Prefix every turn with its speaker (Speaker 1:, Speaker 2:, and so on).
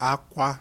Speaker 1: akwa